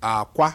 akwa